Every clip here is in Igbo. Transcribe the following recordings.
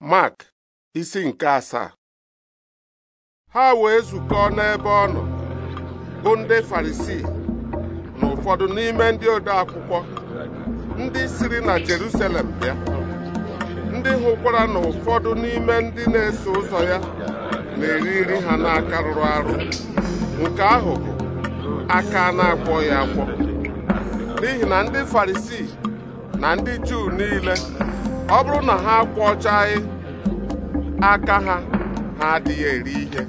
Mark isi nke asaa ha wee zukọọ n'ebe ọ nọ bụ ndị Farisii na ụfọdụ n'ime ndị ode akwụkwọ ndị siri na Jerusalem bịa ndị hụkwara na ụfọdụ n'ime ndị na-eso ụzọ ya na-eri nri ha n'aka rụrụ arụ nke ahụ aka na akpọ ya akpọ n'ihi na ndị Farisii na ndị Juu niile ọ bụrụ na ha kwọchaghị aka ha ha adịghị eri ihe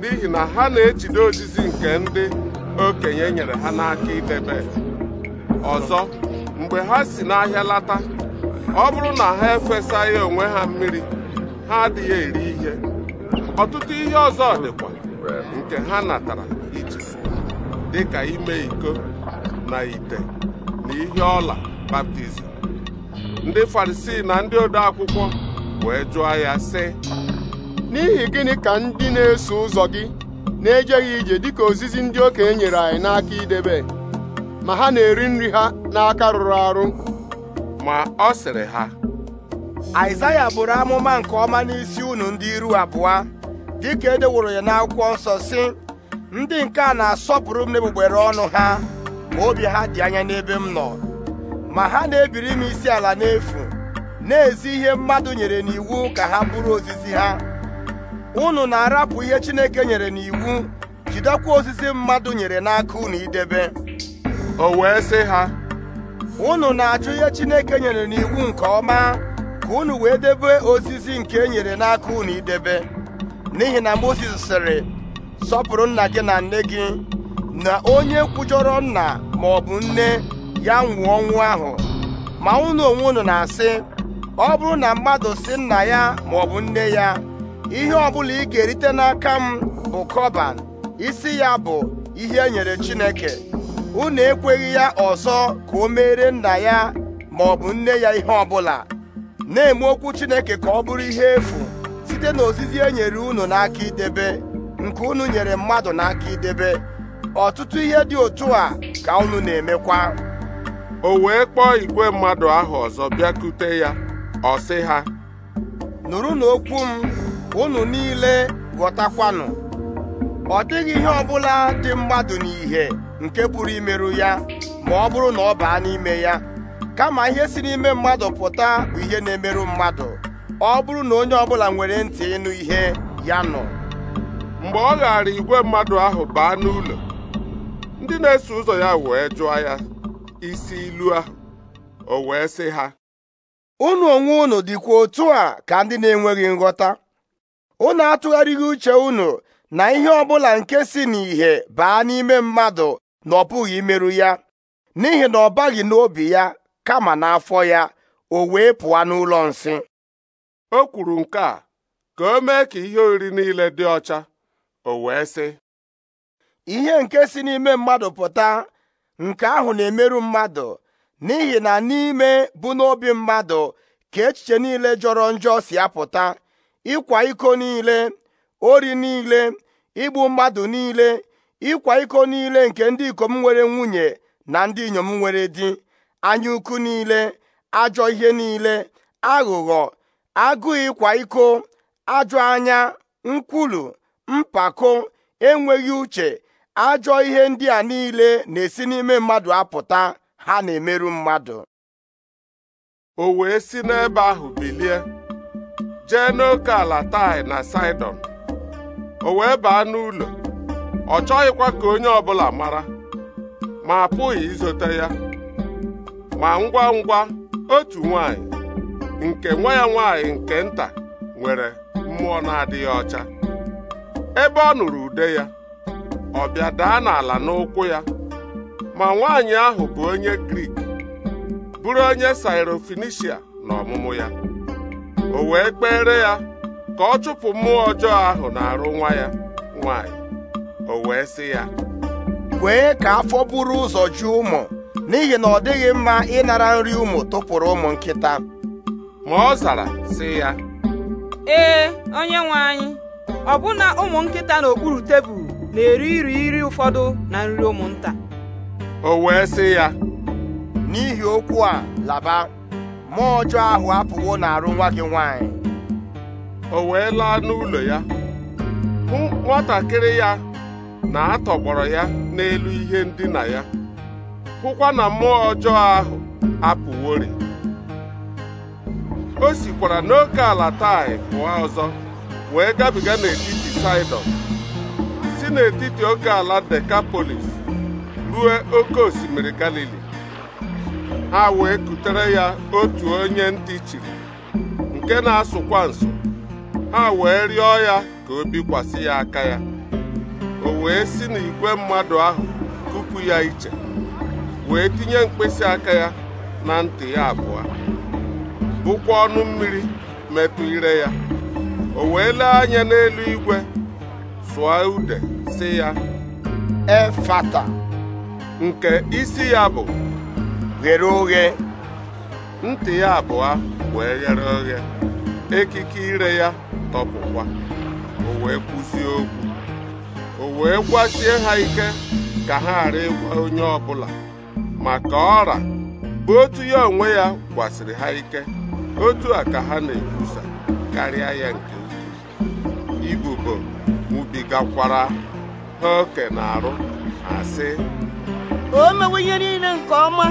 n'ihi na ha na-ejide ozizi nke ndị okenye nyere ha n'aka idebe ọzọ mgbe ha si n'ahịa lata ọ bụrụ na ha efesaghị onwe ha mmiri ha adịghị eri ihe ọtụtụ ihe ọzọ dịkwa nke ha natara iji dịka ime iko na ite na ihe ọla baptizim ndị farisii na ndị ode akwụkwọ wee jụọ ya sị n'ihi gịnị ka ndị na-eso ụzọ gị na-ejeghị ije dịka ozizi ndị okenye nyere anyị n'aka idebe ma ha na-eri nri ha n'aka rụrụ arụ ma ọ sịrị ha Aịzaya bụrụ amụma nke ọma n'isi unu ndị iru abụọ dịka e deworo ya n'akwụkwọ nsọ sị ndị nke a na-asọpụrụ m n'egbugbere ọnụ ha ma obi ha dị anya n'ebe m nọ ma ha na-ebiri m isi ala n'efu na-ezi ihe mmadụ nyere n'iwu ka ha bụrụ ozizi ha unu na-arapụ ihe Chineke nyere n'iwu jidekwa ozizi mmadụ nyere n'aka unu idebe o wee sị ha unu na-achụ ihe Chineke nyere n'iwu nke ọma ka unu wee debe ozizi nke e nyere n'aka unu idebe n'ihi na Mozis sịrị sọpụrụ nna gị na nne gị na onye kwujọrọ nna ma nne ya nwụọ ọnwụ ahụ ma unu onwe unu na-asị ọ bụrụ na mmadụ si nna ya ma ọ bụ nne ya ihe ọbụla ị ga-erite n'aka m bụ kọban isi ya bụ ihe e nyere Chineke unu ekweghị ya ọzọ ka o meere nna ya ma ọ bụ nne ya ihe ọbụla na-eme okwu Chineke ka ọ bụrụ ihe efu site na ozizi e nyere unu n'aka idebe nke unu nyere mmadụ n'aka idebe ọtụtụ ihe dị otu a ka unu na-emekwa o wee kpọọ igwe mmadụ ahụ ọzọ bịakute ya ọ sị ha Nụrụ okwu m unu niile ghọtakwanụ ọ dịghị ihe ọbụla dị mmadụ n'ihe nke pụrụ imerụ ya ma ọ bụrụ na ọ baa n'ime ya kama ihe si n'ime mmadụ pụta bụ ihe na-emerụ mmadụ ọ bụrụ na onye ọbụla nwere ntị ịnụ ihe ya nọ mgbe ọ ghara igwe mmadụ ahụ baa n'ụlọ ndị na-eso ụzọ ya wee jụọ ya isi ilu ahụ o wee sị ha unu onwe unu dịkwa otu a ka ndị na-enweghị nghọta unu atụgharịghị uche unu na ihe ọbụla nke si n'ìhè baa n'ime mmadụ na ọ imerụ ya n'ihi na ọ baghị n'obi ya kama n'afọ ya o wee pụọ n'ụlọ nsị o kwuru nke a ka o mee ka ihe oriri niile dị ọcha o wee sị ihe nke si n'ime mmadụ pụta nke ahụ na-emerụ mmadụ n'ihi na n'ime bụ n'obi mmadụ ka echiche niile jọrọ njọ si apụta ịkwa iko niile ori niile igbu mmadụ niile ịkwa iko niile nke ndị ikom nwere nwunye na ndị inyom nwere di anya ukwu niile ajọ ihe niile aghụghọ agụụ ịkwa iko ajọ anya nkwulu mpako enweghị uche ajọ ihe ndị a niile na-esi n'ime mmadụ apụta ha na-emerụ mmadụ o wee si n'ebe ahụ bilie jee n'oke ala tai na saidon o wee baa n'ụlọ ọ chọghịkwa ka onye ọbụla mara ma apụghị izote ya ma ngwa ngwa otu nwanyị nke nwa ya nwanyị nke nta nwere mmụọ na-adịghị ọcha ebe ọ nụrụ ude ya ọ bịa daa n'ala n'ụkwụ ya ma nwaanyị ahụ bụ onye Grik bụrụ onye Sairofenishia n'ọmụmụ ya o wee kpere ya ka ọ chụpụ mmụọ ọjọọ ahụ na-arụ nwa ya nwaanyị o wee sị ya kwee ka afọ buru ụzọ ju ụmụ n'ihi na ọ dịghị mma ịnara nri ụmụ tụpụrụ ụmụ nkịta ma ọ zara sị ya ee onye nwe anyị ọbụna ụmụ nkịta n'okpuru tebụl na-eri iri iri ụfọdụ na nri ụmụnta o wee sị ya n'ihi okwu a laba mmụọ ọjọọ ahụ apụwo na arụ nwa gị nwanyị o wee laa n'ụlọ ya hụ nwatakịrị ya na atọgbọrọ ya n'elu ihe ndina ya hụkwa na mmụọ ọjọọ ahụ apụworị o sikwara n'oke ala tai pụọ ọzọ wee gabiga n'etiti Saịdọn n'etiti oke ala Dekapolis ruo oke osimiri Galili ha wee kutere ya otu onye ntị chiri nke na-asụkwa nso ha wee rịọ ya ka o bikwasị ya aka ya o wee si n'igwe mmadụ ahụ kupu ya iche wee tinye mkpịsị aka ya na ntị ya abụọ bụkwa ọnụ mmiri metụ ire ya o wee lee anya n'elu igwe sụọ ude sị ya efata nke isi ya bụ ghere oghe ntị ya abụọ wee ghere oghe ekike ire ya tọpụkwa o wee kwụsị okwu o wee gwasie ha ike ka ha ghara ịgwa onye ọbụla maka ọra bụ otu ya onwe ya gwasịrị ha ike otu a ka ha na-ekwusa karịa ya nke ukwuu ibubo ha oke na-arụ asị o mewe ihe niile nke ọma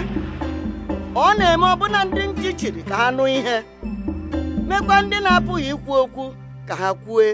ọ na-eme ọbụna ndị nchi chiri ka ha nụ ihe mekwa ndị na-apụghị ikwu okwu ka ha kwue